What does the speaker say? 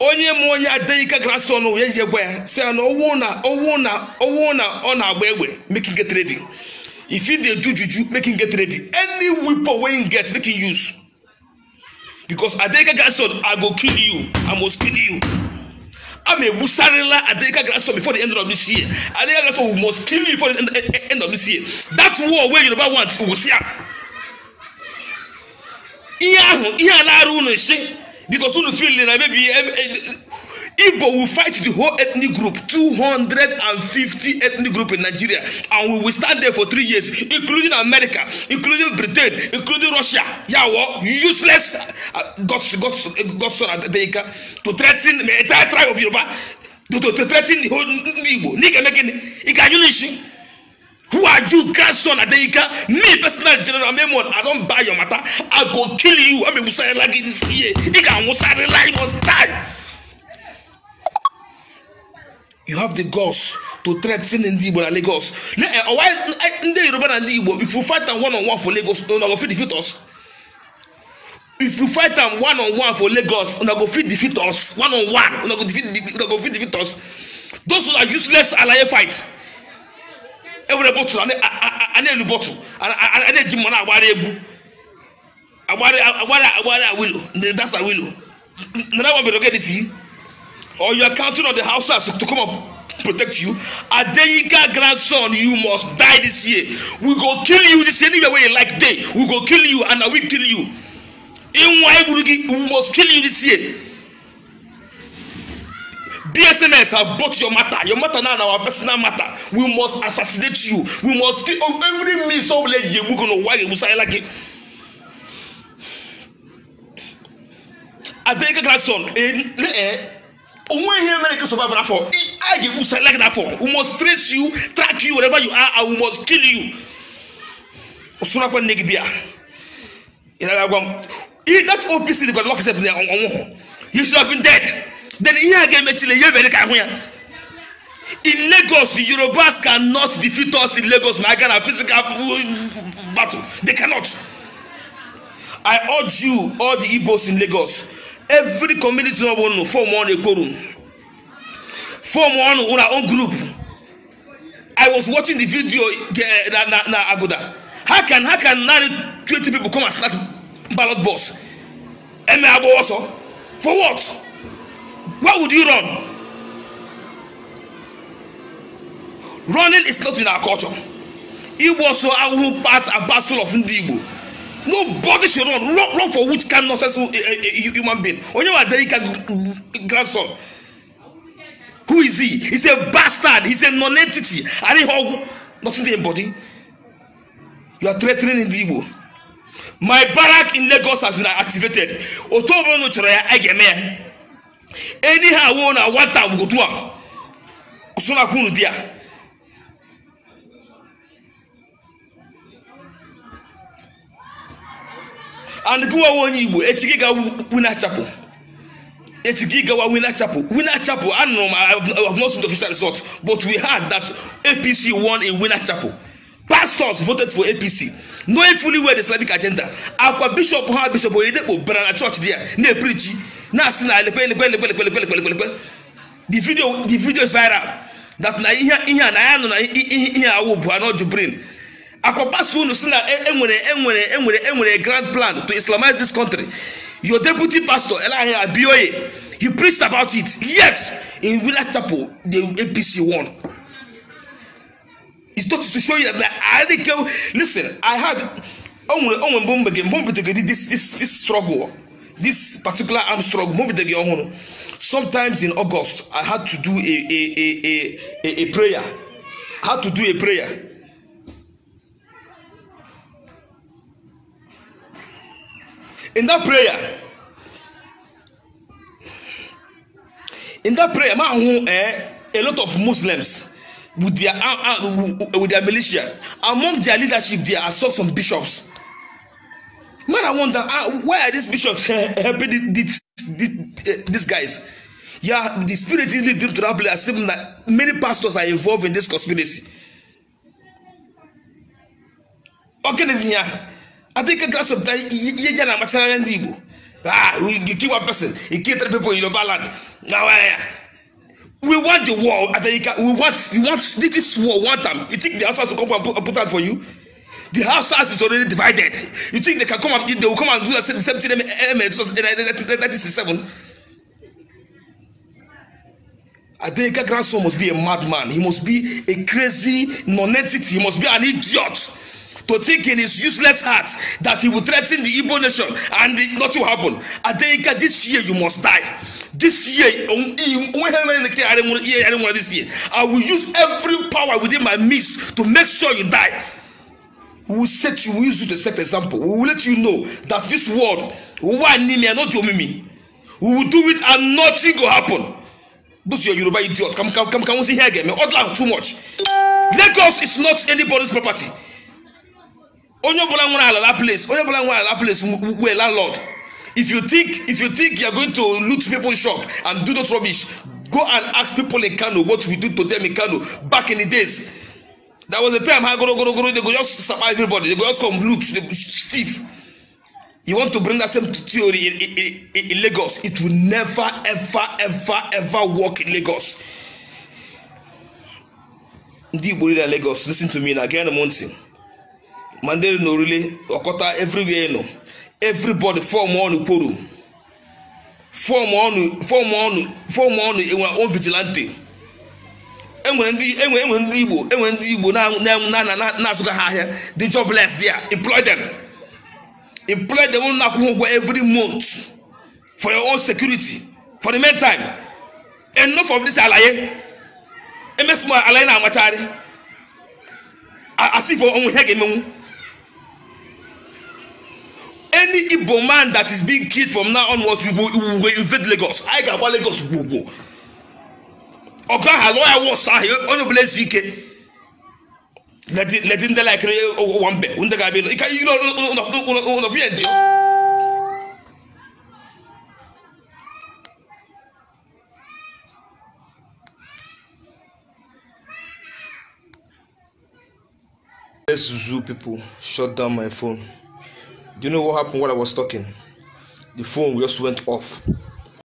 onye mụ onye adeike grason ya ji gwa ya si ya na owu na owu na owu na ọ na-agba egbe making get ready if you dey do juju making get ready any weapon wey you get make you use because adeike grason i go kill you i must kill you A ama egbusarịla adeika grason before the end of this year adeika grason we must kill you before the end of this year that war wey yoruba want we see am ihe ahụ ihe a na-arụ ụlọ isi because unu feel na maybe eh, Igbo will fight the whole ethnic group, 250 ethnic group in Nigeria, and we will stand there for three years, including America, including Britain, including Russia. Yawo, useless uh, God's, God's, God's son Adenka, to threaten the entire tribe of Yoruba, to, to, to threaten the whole Igbo. Nigga making, it can you listen? who are you grandson adeyika me personal general memo i don buy your matter i go kill you Musa. ame musare lagi this year ika musare lagi must die. you have the guts to threaten ndị igbo na lagos ọwa eh, oh, eh, ndị yoruba na ndị igbo if you fight am one on one for lagos una oh, go fit defeat us if you fight am one on one for lagos una oh, go fit defeat us one on one una go fit defeat una go fit defeat us those who are useless alaye fight ewere bọtụl a na-elu bọtụl a na-eji mmanụ agbara egwu agbara agbara awilo dasa awilo nana wa bere ogediti or you are counting on the houses to come up protect you adeyinka grandson you must die this year we go kill you this anywhere wey you like dey we go kill you and na we kill you inwa egburu gi we must kill you this year. BSMS have brought your matter. Your matter now and our personal matter. We must assassinate you. We must kill on every means of let you go on why you say like it. Adeleke Gladson, òun eh, èyí eh, America survive na for. I give you say like that for. We must trace you, track you wherever you are and we must kill you. Osunapẹ Negbia. Ìlànà àgbà. Eh, that OPC the God lock himself there on one. He should have been dead. then ihe a ga in lagos yorubas cannot defeat us in lagos ma aga na physical battle they cannot i urge you all the igbos in lagos every community of unu form one room. form one our own group i was watching the video eh, na na how can how can twenty people come and start ballot box eme also for what. Where would you run? Running is not in our culture. Igbo so ahụhụ part and parcel of ndị Igbo. Nobody should run. Run, run for which kind nonsense eh, eh, eh, human being? Onyewa Adelika grandson. Who is he? He's a bastard. He's a non-entity. And he hug nothing in body. You are threatening ndị Igbo. My barrack in Lagos has been activated. Otu ọbụla chọrọ ya, a ga-eme ya. anyhow wey una want am we go do am so na kunu there and onye igbo echi gawa wina chapel echi gawa wina chapel wina chapel anụrụ m i have not seen the official result but we had that apc won in wina chapel pastors voted for apc knowing fully well the islamic agenda akwa bishop ha bishop oyedepo bịara na church there na-eprichi na-asị na elekwe elekwe elekwe elekwe elekwe elekwe elekwe the video the video is viral that na iya ihe na ya nọ na iya awụ bụ anọ jubrin akwa pastor unu si na enwere enwere enwere enwere grand plan to islamize this country your deputy pastor elahi abioye he preached about it yet in village chapel the apc won it starts to show you that I didn't go. Listen, I had only only bomb again, bomb again. This this this struggle, this particular arm struggle, bomb again. Sometimes in August, I had to do a a a a a, a prayer. I had to do a prayer. In that prayer, in that prayer, man, who, eh, a lot of Muslims. with their uh, uh, with their militia among their leadership they are some bishops man i wonder uh, why are these bishops eh, eh, helping these, these, eh, these guys yeah the spirit easily drift to that place that many pastors are involved in this conspiracy a ya adịghị gaa sometimes ihe ya na-amachara ndị igbo ah we kill one person e kill three people in your land na waya we want the war America we want we watch this war one time um, you think the Hausas to come and put, and put out for you the house Hausas is already divided you think they can come and they will come and do the same thing in 1967 Adenika's grandson must be a madman he must be a crazy nonentity he must be an idiot to think in his useless heart that he will threaten the Igbo nation and it, nothing will happen. Adenika, this year you must die. This year, this year, I will use every power within my means to make sure you die. We will set you, we will use you to set example. We will let you know that this world, one me not your mimi. We will do it and nothing will happen. Those are Yoruba idiot. Come, come, come, come, see here again. Odla too much. Lagos is not anybody's property. onye ọbụla nwere ala that place onye ọbụla nwere ala that place were landlord if you think if you think you are going to loot people's shop and do those rubbish go and ask people in kano what we do to them in kano back in the days That was a time ha goro goro goro they go just survive everybody they go just come loot they go thief you want to bring that same theory in, in, in, lagos it will never ever ever ever work in lagos ndị igbo dị lagos lis ten to me na gee na mountain. mandiri na orile ọkọta everywhere nọ everybody fọm ọnụ kworo fọm ọnụ fọm ọnụ fọm ọnụ enwe on vigilante enwere ndị enwe enwe ndị igbo enwe ndị igbo na-asụga ha ahịa the jobless there employ them employ them na akwụkwọ ụgwọ every month for your own security for the meantime enough for this alaye emesimo alaye na-amachari asị for onwe ihe ga-emenwu any Igbo man that is being killed from now onwards, will, will invade Lagos. I got call Lagos Gbogbo. Ọ̀gá let Let's zoo people shut down my phone. Do you know what happened while I was talking? The phone just went off.